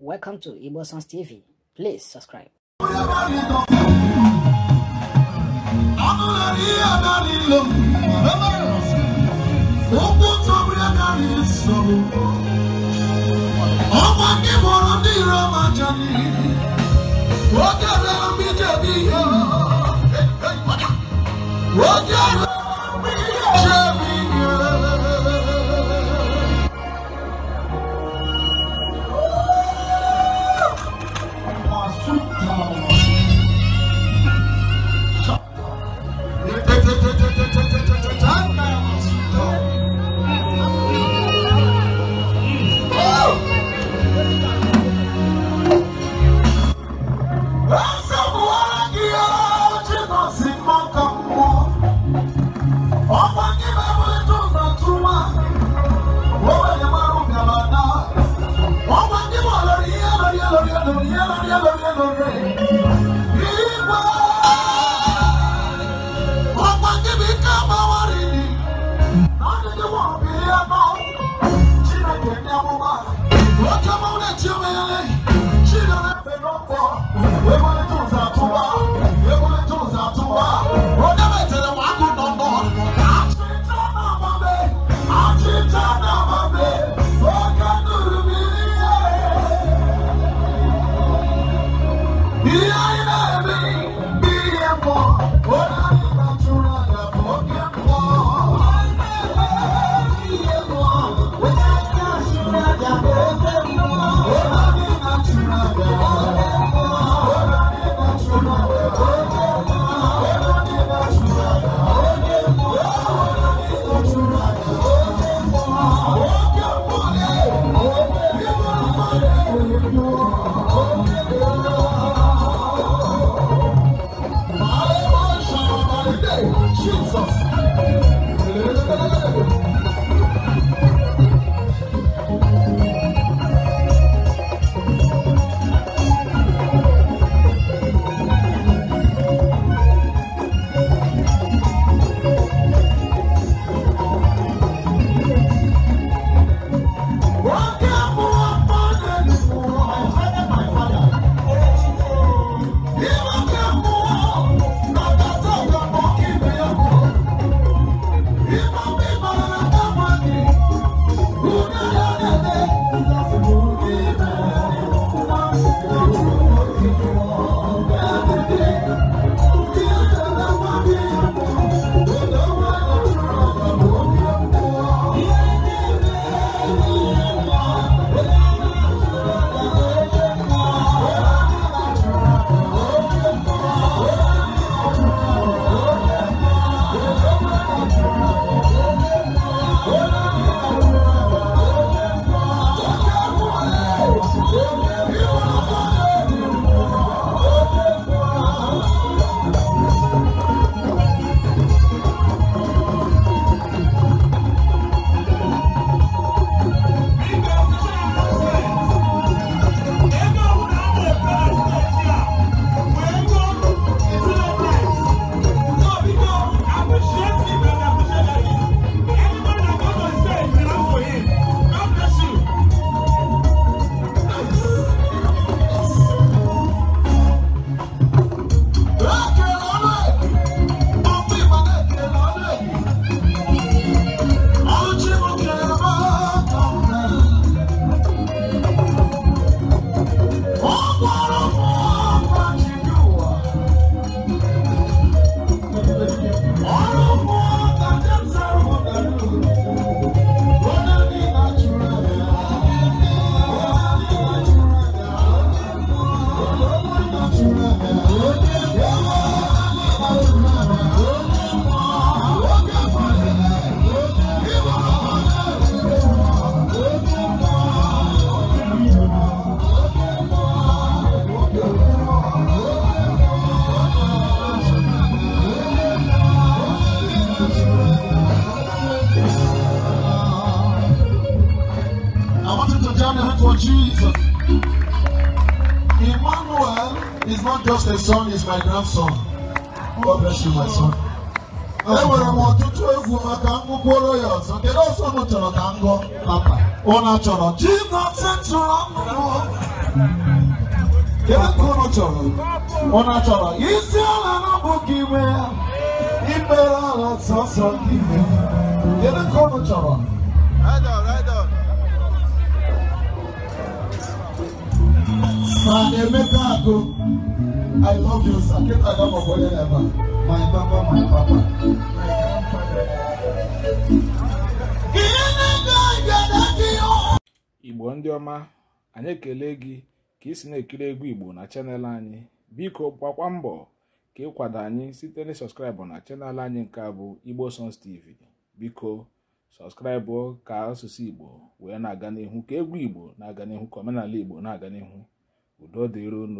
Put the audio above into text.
Welcome to Igbo Sons TV. Please subscribe. ọkwa gị bụrụ Thank you. name for Jesus. Emmanuel is not just a son, he's my grandson. God bless you, my son. enwere m ọtụtụ egwu maka ngwụkworo ya ọzọ kedu ọzọ m chọrọ ka m gụọ chọrọ kedu chọrọ chọrọ isi ala gị ala sọsọ gị kedu chọrọ Sir Emeka Ako, I love you, sir. Keep that up for ever. My papa, my papa. Igbo ndị ọma anyị ekele gị ka ị na-ekiri egwu Igbo na chanel anyị biko gbakwa mbọ ka ịkwado anyị site na sọskraịbụ na chanel anyị nke a bụ Igbo Songs TV biko sọskraịbụ ka asụsụ Igbo wee na-aga n'ihu ka egwu Igbo na-aga n'ihu ka omenala Igbo na-aga n'ihu udo dịron